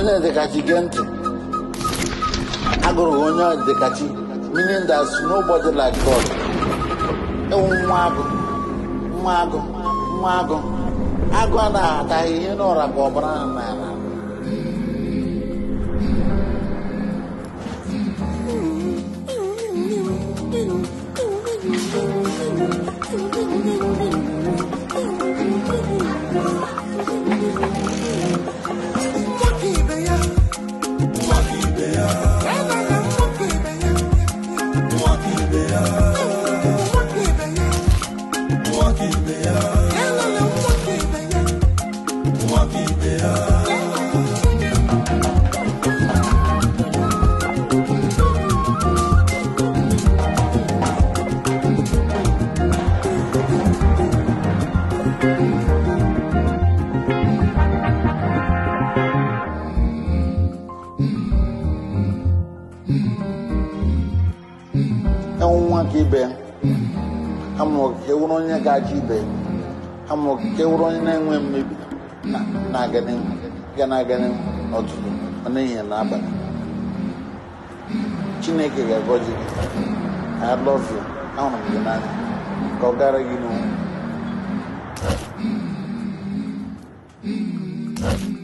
onye dịkachi gee ntị agụrụ onye dịkachi meaning that nobody like God nwa agụ nwa agụ nwa agụ agụ a na-ataghị ihe n'ụra ka ọbara n'ala Thank you. Mwaki beya Mwaki beya Mwaki beya nwa ka ibe ya ha mụrụ ka ewuru onye ga-aja ibe ha mụrụ ka ewuru onye na-enwe mmebi na-aga n'ihu ga na-aga na abalị n'abalị chineke ga-agọzi gị I love you ahụrụ m gị n'anya ka ọ gara gị n'onwe